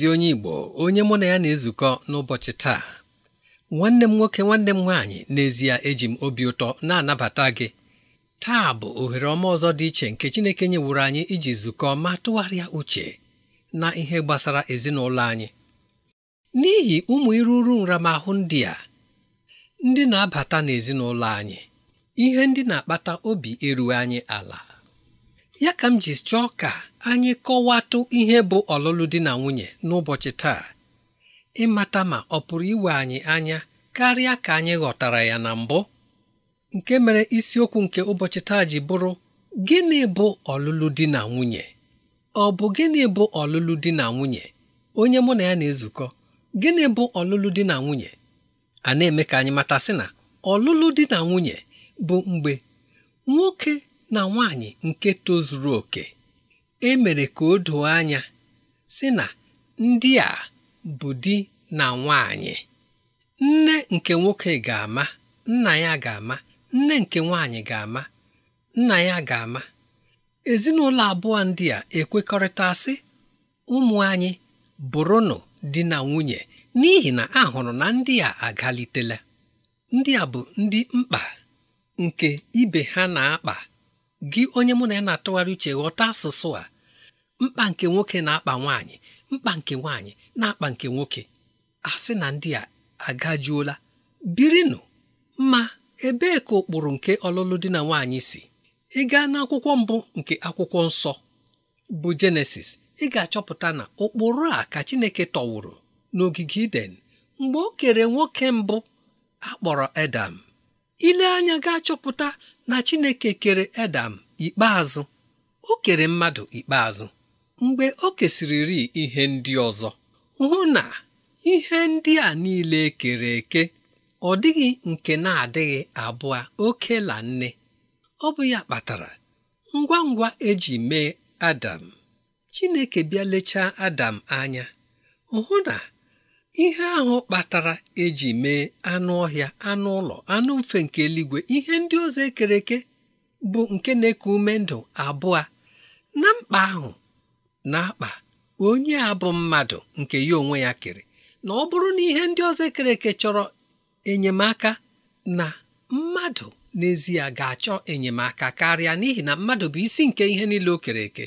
ezi onye Igbo onye mụ na ya na-ezukọ n'ụbọchị taa nwanne m nwoke nwanne m nwaanyị n'ezie eji m obi ụtọ na-anabata gị taa bụ ohere ọma ọzọ dị iche nke Chineke nyewuru anyị iji zukọ ma tụgharịa uche na ihe gbasara ezinụlọ anyị n'ihi ụmụ iruru nramahụ ndị a ndị na-abata n'ezinụlọ anyị ihe ndị na-akpata obi erughị anyị ala ya ka m ji chọọ ka anyị kọwatụ ihe bụ ọlụlụ di na nwunye n'ụbọchị taa ịmata ma ọ pụrụ iwe anyị anya karịa ka anyị ghọtara ya na mbụ nke mere isiokwu nke ụbọchị taa ji bụrụ gịnị bụ ọlụlụ di na nwunye ọ bụ gịnị bụ ọlụlụ di na nwunye onye mụ na ya na-ezukọ gịnị bụ ọlụlụ di na nwunye a na-eme ka anyị mata sị na ọlụlụ di na nwunye bụ mgbe nwoke na nwanyị nke tozuru oke e mere ka o doo anya sị na ndị a bụ di na nwanyị nne nke nwoke ga-ama nna ya ga-ama nne nke nwaanyị ga-ama nna ya ga-ama ezinụlọ abụọ ndị a ekwekọrịta sị ụmụ anyị bụrụnụ di na nwunye n'ihi na a hụrụ na ndị a agalitela ndị a bụ ndị mkpa nke ibe ha na-akpa gị onye mụ na ya na-atụgharị uche ghọta asụsụ a mkpa nke nwoke na-akpa nwaanyị mkpa nke nwaanyị na-akpa nke nwoke a sị na ndị a agajuola birinụ ma ebee ka ụkpụrụ nke ọlụlụ di na nwaanyị si ị gaa n'akwụkwọ mbụ nke akwụkwọ nsọ bụ jenesis ị ga-achọpụta na ụkpụrụ a ka chineke tọwụrụ n'ogige iden mgbe o kere nwoke mbụ akpọrọ edam ile anya ga-achọpụta na chineke kere edam ikpeazụ o kere mmadụ ikpeazụ mgbe o kesịrịrị ihe ndị ọzọ hụ na ihe ndị a niile e kere eke ọ dịghị nke na-adịghị abụọ oke la nne ọ bụ ya kpatara ngwa ngwa eji mee Adam Chineke bịa lechaa Adam anya hụ na ihe ahụ kpatara eji mee anụ ọhịa anụ ụlọ anụ mfe nke eluigwe ihe ndị ọzọ ekere eke bụ nke na-eku ume ndụ abụọ na mkpa ahụ na-akpa onye a bụ mmadụ nke ya onwe ya kere na ọ bụrụ na ihe ndị ọzọ kere eke chọrọ enyemaka na mmadụ n'ezie ga-achọ enyemaka karịa n'ihi na mmadụ bụ isi nke ihe niile o kere eke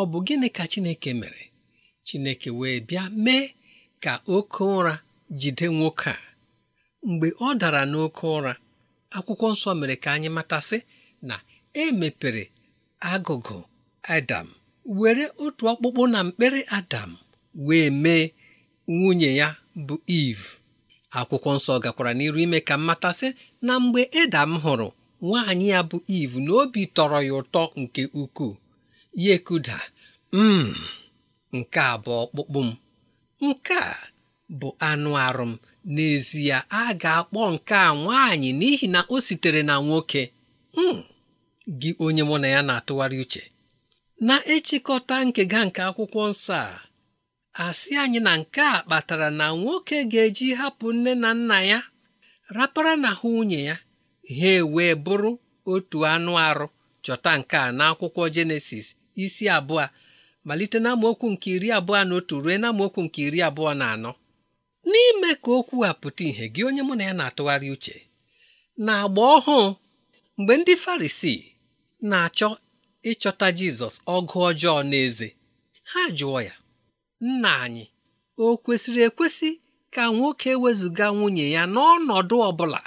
ọ bụ gịnị ka Chineke mere Chineke wee bịa mee ka oke ụra jide nwoke a mgbe ọ dara n'oke ụra akwụkwọ nsọ mere ka anyị matasị na e mepere agụgụ Adam were otu ọkpụkpụ na mkpịrị Adam wee mee nwunye ya bụ iv akwụkwọ nsọ gakwara n'iru ime ka mmatasị na mgbe Adam hụrụ nwaanyị ya bụ iv na obi tọrọ ya ụtọ nke ukwuu ya ekuda m hmm, nke a bụ ọkpụkpụ m nke a bụ anụ arụ m n'ezie a ga-akpọ nke a nwaanyị n'ihi na o sitere na nwoke hmm, gị onye mụ na ya na-atụgharị uche na-echịkọta nkega nke akwụkwọ nsọ a asị anyị na nke a kpatara na nwoke ga-eji hapụ nne na nna ya rapara na ha nwunye ya ha ewee bụrụ otu anụ arụ chọta nke a n'akwụkwọ jenesis isi abụọ malite amaokwu nke iri abụọ na otu ruo amaokwu nke iri abụọ na anọ n'ime ka okwu a pụta ìhè gị onye mụ na ya na-atụgharị uche na agba ọhụụ mgbe ndị farisi na-achọ ịchọta Jizọs ọgụ ọjọọ n'eze ha jụọ ya nna anyị o kwesịrị ekwesị ka nwoke wezụga nwunye ya n'ọnọdụ ọ bụla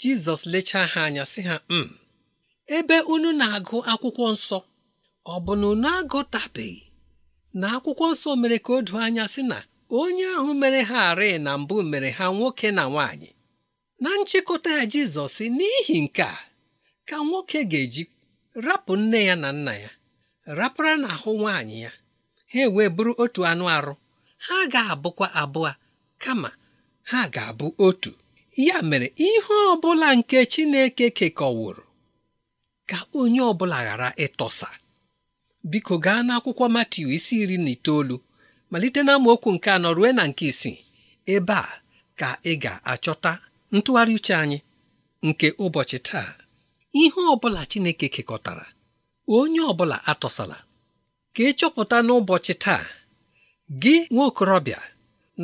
Jizọs lechaa ha anya sị ha m mm, ebe unu na-agụ akwụkwọ nsọ ọ bụ na unu agụtabeghị na akwụkwọ nsọ mere ka o doo anya sị na onye ahụ mere ha arị na mbụ mere ha nwoke na nwaanyị na nchịkọta ya Jizọs n'ihi nke a ka nwoke ga-eji rapụ nne ya na nna ya rapara n'ahụ nwaanyị ya ha e wee bụrụ otu anụ arụ ha ga-abụkwa abụọ kama ha ga-abụ otu ya mere ihe ọ bụla nke Chineke kekọwụrụ ka onye ọbụla ghara ịtọsa biko gaa n'akwụkwọ Matiu isi iri na itoolu malite na amaokwu nke anọ ruo na nke isii ebe a ka ị ga-achọta ntụgharị uche anyị nke ụbọchị taa ihe ọbụla Chineke kekọtara onye ọbụla atọsala ka ị chọpụta n'ụbọchị taa gị nwa okorobịa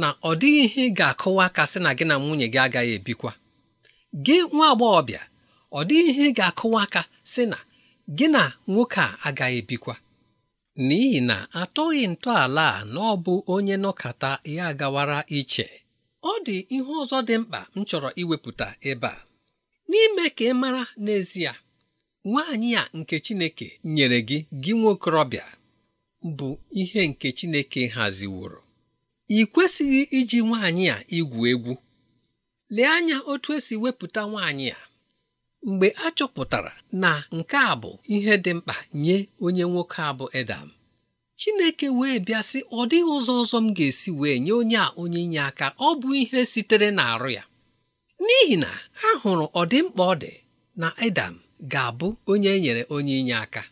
na ọ dịghị ihe ị ga-akụwa aka sị na gị na nwunye gị agaghị ebikwa gị nwa agbọghọbịa ọ dịghị ihe ị ga-akụwa aka sị na gị na nwoke a agaghị ebikwa n'ihi na atọghị ntọala a na ọ bụ onye nọkata ya gawara iche ọ dị ihe ọzọ dị mkpa m chọrọ iwepụta ebe a n'ime ka ị mara n'ezie nwaanyị a nke Chineke nyere gị gị rọbịa bụ ihe nke Chineke haziworo ị kwesịghị iji nwaanyị a igwu egwu lee anya otu esi wepụta nwaanyị a mgbe a chọpụtara na nke a bụ ihe dị mkpa nye onye nwoke a bụ Edam Chineke wee bịa sị ọ dịghị ụzọ ọzọ m ga-esi wee nye onye a onye inye aka ọ bụ ihe sitere n'arụ ya n'ihi na a hụrụ ọdịmkpa ọ dị na Adam ga-abụ onye e nyere onye inye aka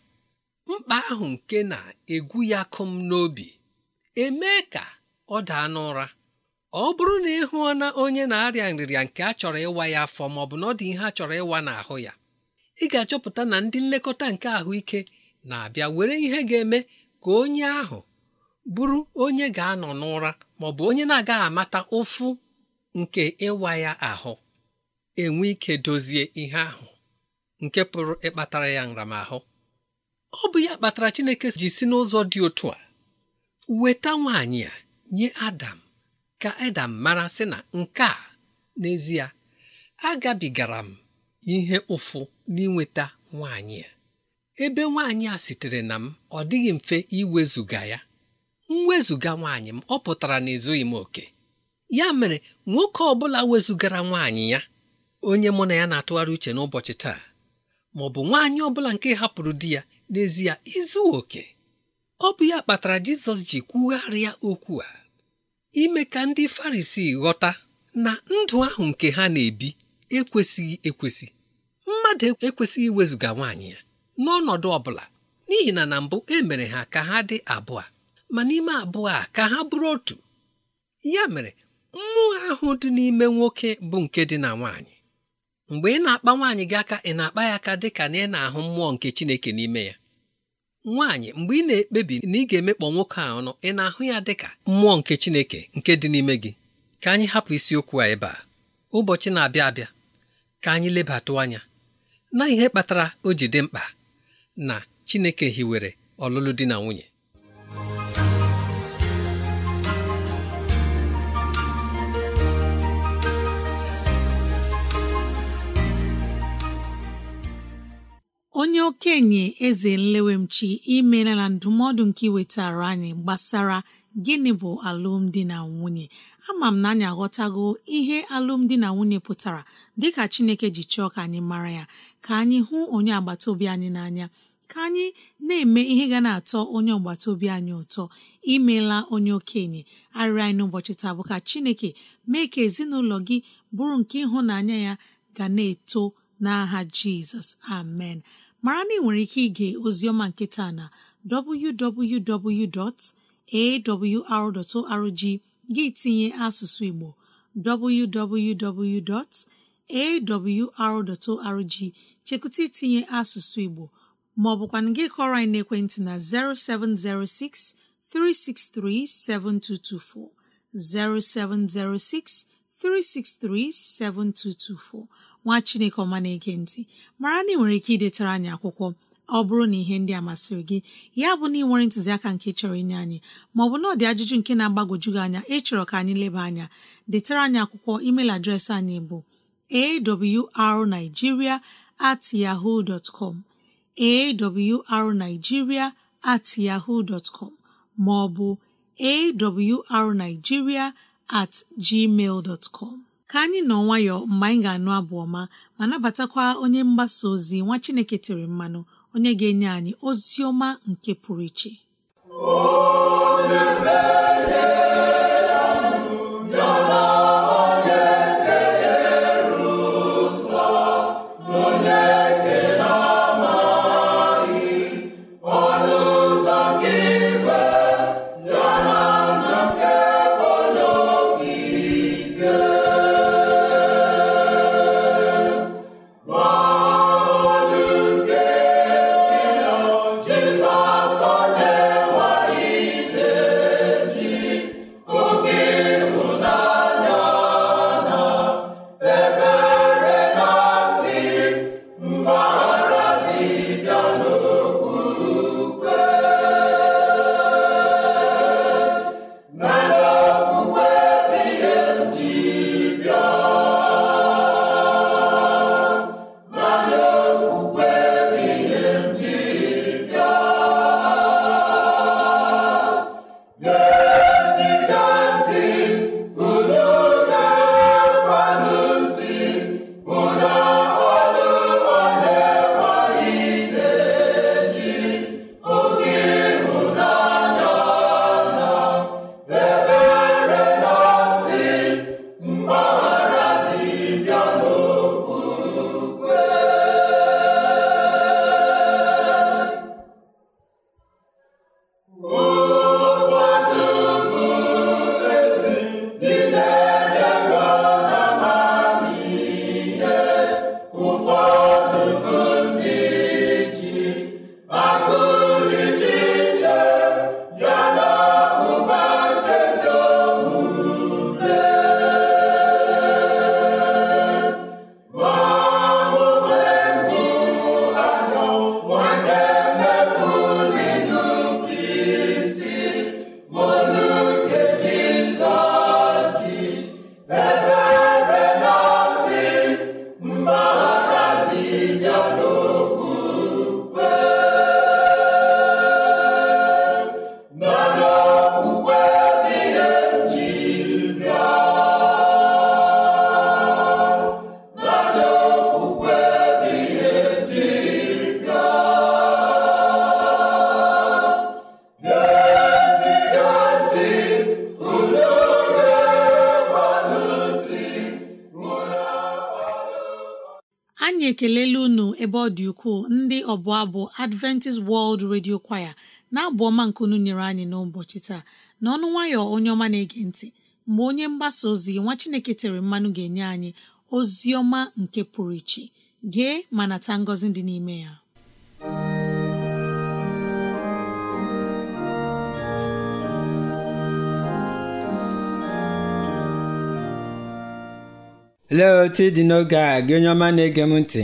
mkpa ahụ nke na-egwu ya kụm n'obi emee ka ọ daa n'ụra ọ bụrụ na ị hụọ na onye na-arịa nrịrịa nke a chọrọ ịwa ya afọ ma ọ bụ na ọ dị ihe a chọrọ ịwa n'ahụ ya ị ga-achọpụta na ndị nlekọta nke ahụike na-abịa were ihe ga-eme ka onye ahụ bụrụ onye ga-anọ n'ụra ma ọ bụ onye na-agaghị amata ụfụ nke ịwa ya ahụ enwe ike dozie ihe ahụ nke pụrụ ịkpatara ya nramahụ ọ bụ ya kpatara Chineke ji si n'ụzọ dị otu a weta nwaanyị a nye Adam ka Adam mara sị na nke a n'ezie agabigara m ihe ụfụ n'inweta nwaanyị a ebe nwaanyị a sitere na m ọ dịghị mfe iwezuga ya m wezụga nwaanyị m ọ pụtara na ezughị m oke ya mere nwoke ọ bụla wezụgara nwaanyị ya onye mụ na ya na-atụgharị uche n'ụbọchị taa ma ọ bụ nwaanyị ọ bụla nke hapụrụ di ya n'ezie izu oke ọ bụ ya kpatara Jizọs ji kwugharịa okwu a ime ka ndị Farisii ghọta na ndụ ahụ nke ha na-ebi ekwesịghị ekwesị mmadụ ekwesịghị wezụga nwaanyị ya n'ọnọdụ ọ bụla n'ihi na na mbụ e mere ha ka ha dị abụọ ma n'ime abụọ a ka ha bụrụ otu ya mere mmụọ ahụ dị n'ime nwoke bụ nke dị na nwaanyị mgbe ị na-akpa nwaanyị gị aka ị na-akpa ya aka dị ka na ị na-ahụ mmụọ nke Chineke n'ime ya nwaanyị mgbe ị na-ekpebi na ị ga-emekpọ nwoke a ọnụ ị na-ahụ ya dị ka mmụọ nke Chineke nke dị n'ime gị ka anyị hapụ isiokwu a ebe a ụbọchị na-abịa abịa ka anyị lebatụ anya na ihe kpatara o ji dị mkpa na Chineke hiwere ọlụlụ di na nwunye onye okenye eze nlewemchi imela na ndụmọdụ nke iwetara anyị gbasara gịnị bụ alụmdi na nwunye ama m na anyị aghọtago ihe alụmdi na nwunye pụtara dịka chineke ji chọọ ka anyị mara ya ka anyị hụ onye agbata obi anyị n'anya ka anyị na-eme ihe ga na-atọ onye agbata obi anyị ụtọ imela onye okenye arịrị anyị n'ụbọchị taa bụ ka chineke mee ka ezinụlọ gị bụrụ nke ịhụnanya ya ga na-eto n'aha jizọs amen mara na ị nwere ike ige ozioma nke taa na www.awr.org gị tinye asụsụ Igbo www.awr.org chekụta itinye asụsụ Igbo ma ọ bụkwa gị kọrọ anyị n'ekwentị na 0706 363 7224 0706 3637224 nwa chineke ọma na-ege mara na ị nwere ike idetara anyị akwụkwọ ọ bụrụ na ihe ndị a masịrị gị ya bụ na ị nwere ntụziaka nke chọrọ inye anyị maọbụ na ọ dị ajụjụ nke na-agbagwoju gị anya ịchọrọ ka anyị leba anya detara anyị akwụkwọ email adreesị anyị bụ arigiria at yahoo dot com at yahoo dot com maọbụ awrnigeria at gmail dot com ka anyị nọ nwayọọ mgbe anyị ga-anụ abụ ọma ma nabatakwa onye mgbasa ozi nwa Chineke tere mmanụ onye ga-enye anyị ozi ọma nke pụrụ iche ukwuu ndị ọbụ abụ Adventist World Radio Choir na-abụ ọma nkunu nyere anyị n'ụbọchị taa na ọnụ nwayọ onye ọma na-ege ntị mgbe onye mgbasa ozi nwa Chineke tere mmanụ ga-enye anyị ozi ọma nke pụrụ iche gee ma nata ngọzi dị n'ime ya lee otu n'oge a gị onye ọma na-ege m ntị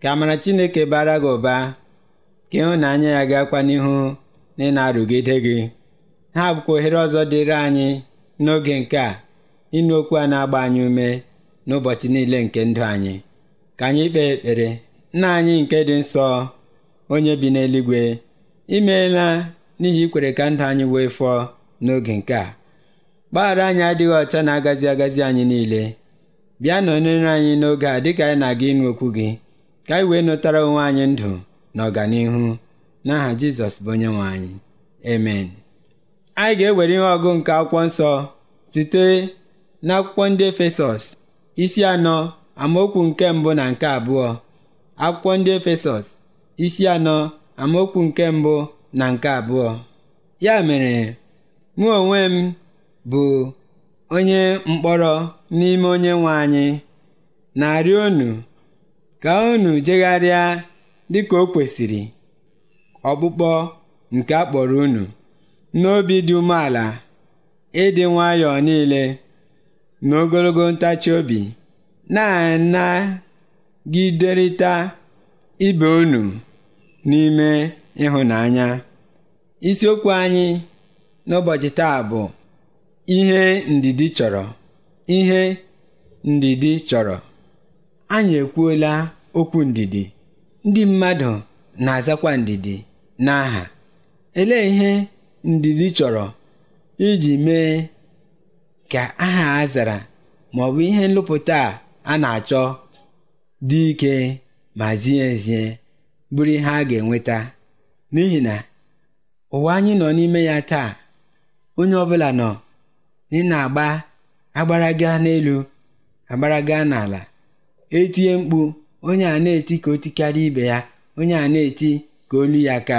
ka amara Chineke bara gị ụba ka ịhụnanya ya gakwa n'ihu na ịna arụgide gị ha bụkwa ohere ọzọ dịrị anyị n'oge nke a ịnụ okwu a na-agba anyị ume n'ụbọchị niile nke ndụ anyị ka anyị kpee ekpere nna anyị nke dị nsọ onye bi n'eluigwe imeela n'ihi ikwere ka ndụ anyị wee fọọ n'oge nke a gbaghara anyị adịghị ọcha na-agazi agazi anyị niile bịa onere anyị n'oge a dịka anyị na-aga ịnụ okwu gị ka anyị wee nụtara onwe anyị ndụ na ọganihu n'aha Jizọs bụ onye nwe anyị amen anyị ga-ewere ihe ọgụ nke akwụkwọ nsọ site n'akwụkwọ ndị Efesọs isi anọ amaokwu nke mbụ na nke abụọ akwụkwọ ndị Efesọs isi anọ amaokwu nke mbụ na nke abụọ ya mere mụ onwe m bụ onye mkpọrọ n'ime onye nwe anyị na-arịọ onu ka unu jegharịa dịka o kwesịrị ọkpụkpọ nke a kpọrọ unu n'obi dị umeala ịdị nwayọọ niile na ogologo ntachi obi na-anagiderịta ibe unu n'ime ịhụnanya isiokwu anyị n'ụbọchị taa bụ ihe ndidi chọrọ ihe ndidi chọrọ Anyị ekwuola okwu ndidi, ndị mmadụ na-azakwa ndidi n'aha. elee ihe ndidi chọrọ iji mee ka aha a zara ma ọ ihe nlụpụta a na-achọ dị ike ma zie ezie bụrụ ihe a ga-enweta? N'ihi na ụwa anyị nọ n'ime ya taa, onye ọbụla nọ ị na-agba agbaraga n'elu agbaraga n'ala etinye mkpu onye a na-eti ka o tikarịa ibe ya, onye a na-eti ka olu ya ka.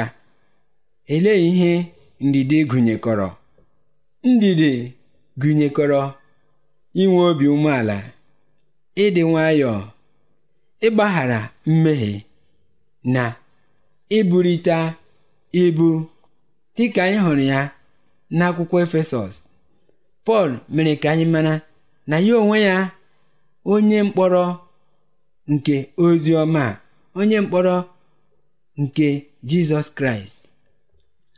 elee ihe ndidi gụnyekọrọ? Ndidi gụnyekọrọ inwe obi umeala, ịdị nwayọọ, ịgbaghara mmehie, na iburita ibu dịka anyị hụrụ ya n'akwụkwọ Efesọs. Pọl mere ka anyị mara na ya onwe ya, onye mkpọrọ nke ozi ọma onye mkpọrọ nke jizọs kraịst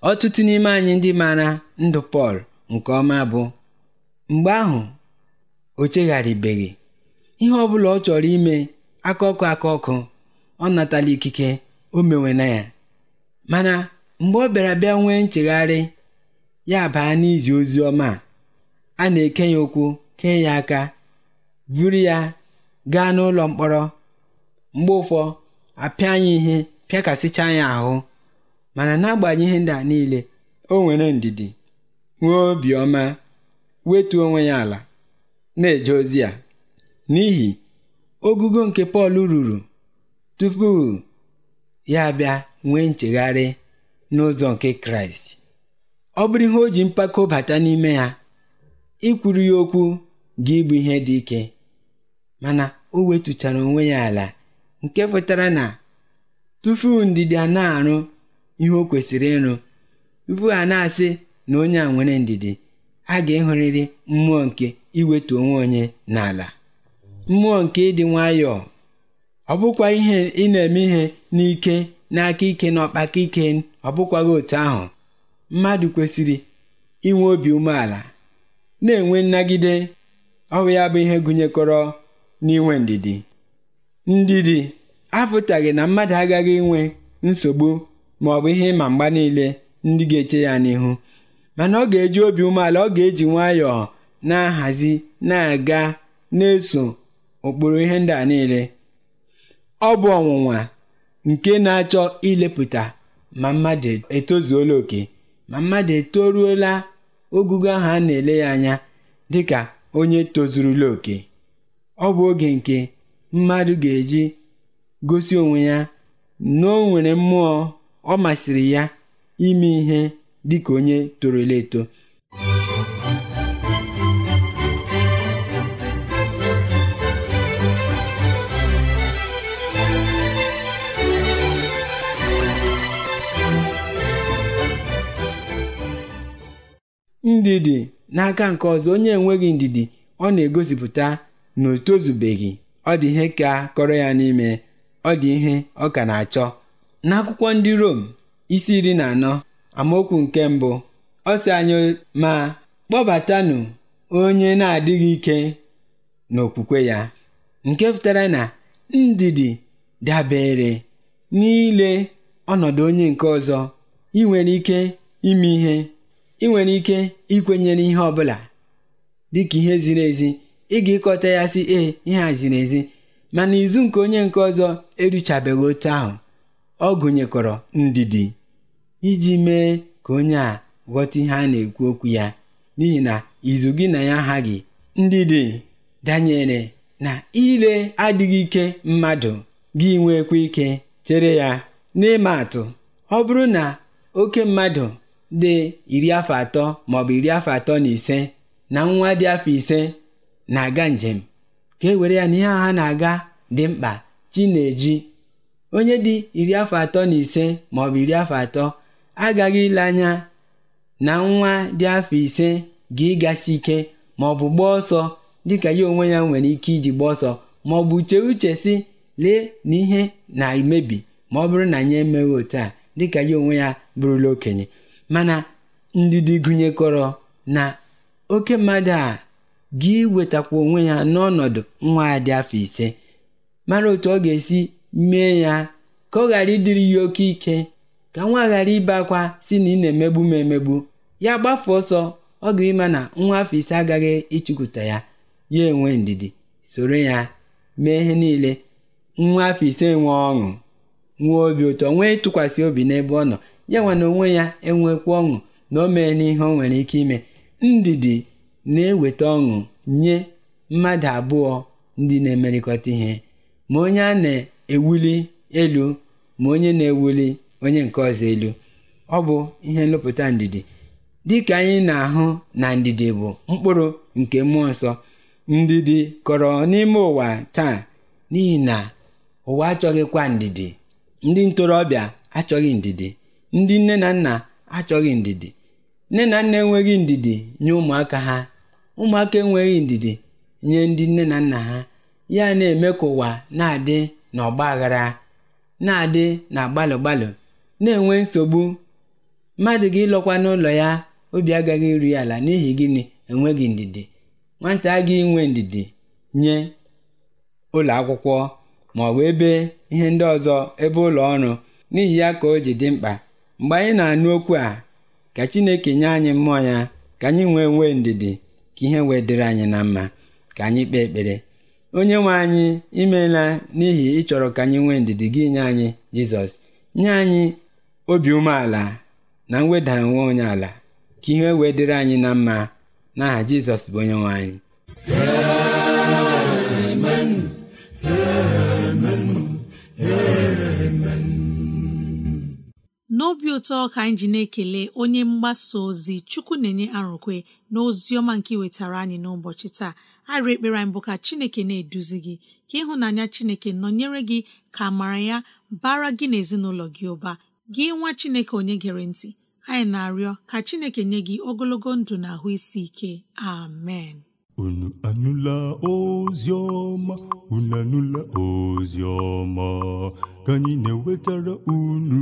ọtụtụ n'ime anyị ndị mara ndụ pọl nke ọma bụ mgbe ahụ o chegharịbeghị ihe ọ bụla ọ chọrọ ime akaọkụ akaọkụ ọ natala ikike o na ya mana mgbe ọ bịara bịa nwee nchegharị ya baa n'izi ozi ọma a na-eke ya ụkwụ kee ya aka buru ya gaa n'ụlọ mkpọrọ mgbe ụfọ apịa anyị ihe pịakasịcha anyị ahụ mana n'agbanyeghị ihe ndị a niile o nwere ndidi nwee obiọma wetu onwe ya ala na-eje ozi ya n'ihi ogugo nke Pọl ruru tupu ya bịa nwee nchegharị n'ụzọ nke Kraịst ọ bụrụ ihe o ji mpako bata n'ime ya ikwuru ya okwu ga ịbụ ihe dị ike mana o wetuchara onwe ya ala nke pụtara na tupu a na-arụ ihe o kwesịrị ịrụ tupu a na-asị na onye a nwere ndidi a ga-ehụrịrị mmụọ nke iweta onwe onye n'ala mmụọ nke ịdị nwayọọ ọ bụkwa ihe ị na-eme ihe n'ike n'aka ike na ọkpaka ike ọ bụkwaghị otu ahụ mmadụ kwesịrị inwe obi umeala na-enwe nnagide ọrụ ya bụ ihe gụnyekọrọ n'inwe ndidi ndidi apụtaghị na mmadụ agaghị inwe nsogbu ma ọ bụ ihe ịma mgba niile ndị ga-eche ya n'ihu mana ọ ga-eji obi umeala ọ ga-eji nwayọọ na-ahazi na-aga na-eso ụkpụrụ ihe ndị a niile ọ bụ ọnwụnwa nke na-achọ ilepụta ma mmadụ etozuola oke ma mmadụ etoruola ogugo ahụ a na-ele ya anya dịka onye tozurula oke ọ bụ oge nke mmadụ ga-eji gosi onwe ya na o nwere mmụọ ọ masịrị ya ime ihe dị ka onye toro torola eto ndidi n'aka nke ọzọ onye enweghị ndidi ọ na-egosipụta na o tozubeghị ọ dị ihe ka kọrọ ya n'ime ọ dị ihe ọ ka na-achọ n'akwụkwọ ndị Rom isi iri na anọ amaokwu nke mbụ ọ sị anyị ma kpọbatanụ onye na-adịghị ike n'okwukwe ya nke pụtara na ndidi dabere n'ile ọnọdụ onye nke ọzọ ị nwere ike ime ihe ị nwere ike ikwenyere ihe ọ dịka ihe ziri ezi ị ga-ịkọta ya sị ee ihe a ziri ezi mana izu nke onye nke ọzọ eruchabeghị otu ahụ ọ gụnyekọrọ ndidi iji mee ka onye a ghọta ihe a na-ekwu okwu ya n'ihi na izu gị na ya aghaghị ndidi danyere na ile adịghị ike mmadụ gị nwekwa ike chere ya n'ịma atụ ọ bụrụ na oke mmadụ dị iri afọ atọ maọbụ iri afọ atọ na ise na nwa dị afọ ise na-aga njem ka e were ya na ihe a ha na-aga dị mkpa chi na-eji onye dị iri afọ atọ na ise maọbụ iri afọ atọ agaghị ile anya na nwa dị afọ ise ga ịgasị ike maọbụ gbaa ọsọ dịka ya onwe ya nwere ike iji gbaa ọsọ maọbụ chee uche si lee na ihe na-emebi ma ọ bụrụ na anyị emeghị otu a dịka ya onwe ya bụrụla okenye mana ndidi gụnyekọrọ na oke mmadụ a gị wetakwa onwe ya n'ọnọdụ nwa ya dị afọ ise mara otu ọ ga-esi mee ya ka ọ ghara ịdịrị ya oke ike ka nwa ghara ibe akwa si na ị na-emegbu m emegbu ya gbafe ọsọ ọ ga-ịma na nwa afọ ise agaghị ịchụkwụta ya ya enwe ndidi soro ya mee ihe niile nwa afọ ise nwee ọṅụ nwee obi ụtọ nwee ịtụkwasị obi n'ebe ọ nọ ya nwa na onwe ya enwekwa ọṅụ na o mee n'ihe o nwere ike ime ndidi na-eweta ọṅụ nye mmadụ abụọ ndị na-emerịkọta ihe, ma onye a na-ewuli elu ma onye na-ewuli onye nke ọzọ elu, ọ bụ ihe nlụpụta ndidi, dịka anyị na-ahụ na ndidi bụ mkpụrụ nke Mmụọ Nsọ. Ndidi kọrọ n'ime ụwa taa n'ihi na ụwa achọghịkwa ndidi, ndị ntorobịa achọghị ndidi, ndị nne na nna achọghị ndidi. nne na nna enweghị ndidi nye ụmụaka ha ụmụaka enweghị ndidi nye ndị nne na nna ha ya na-eme ka ụwa na-adị n'ọgba aghara na-adị na gbalụgbalụ gbalụ na-enwe nsogbu mmadụ gị lọkwa n'ụlọ ya obi agaghị eru ya ala n'ihi gịnị enweghị ndidi nwata agaghị inwe ndidi nye ụlọ akwụkwọ ma ọ bụ ebe ihe ndị ọzọ ebe ụlọ ọrụ n'ihi ya ka o ji dị mkpa mgbe anyị na-anụ okwu a ka Chineke nye anyị mmụọ ya ka anyị nwee nwee ndidi ka ihe wee dịrị anyị na mma ka anyị kpee ekpere onye nwe anyị imeela n'ihi ịchọrọ ka anyị nwee ndidi gị nye anyị Jizọs nye anyị obi umeala na mweda onwe onye ala ka ihe wee dịrị anyị na mma n'aha Jizọs bụ onye nwe anyị ndị ụtọ ka anyị ji na-ekele onye mgbasa ozi chukwu na-enye arụkwe na ọma nke wetara anyị n'ụbọchị taa arị ekpere anyị bụ ka chineke na-eduzi gị ka ịhụnanya chineke nọnyere gị ka amara ya bara gị na ezinụlọ gị ụba gị nwa chineke onye gere ntị anyị na-arịọ ka chineke nye gị ogologo ndụ na ahụ isi ike amen unu anụla ozi unu anụla ozi ka anyị na-ewetara unu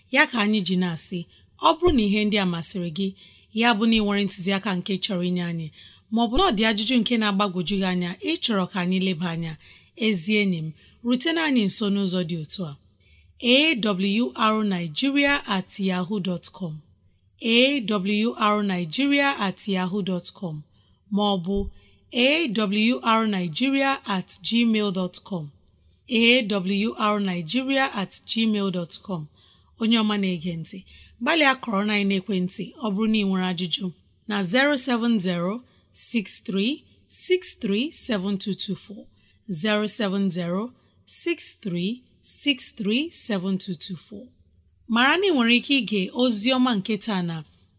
ya ka anyị ji na-asị ọ bụrụ na ihe ndị a masịrị gị ya bụ na ịnwere ntụziaka nke chọrọ inye anyị maọbụ na ọ dị ajụjụ nke na-agbagwoju gị anya ịchọrọ ka anyị leba anya ezi enyi m rutena anyị nso n'ụzọ dị otu a awrnigeria at yahoo dot com at yahoo dot maọbụ awrnigeria at gmail dot com at gmail dot com onye ọma na-ege ntị gbalịa kọrọ na ekwentị ọ bụrụ na ị nwere ajụjụ na 07063637224 mara na ị nwere ike ige ozi ọma nke na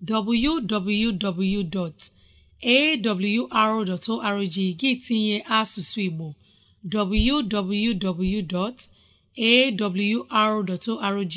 www.awr.org gị tinye asụsụ Igbo www.awr.org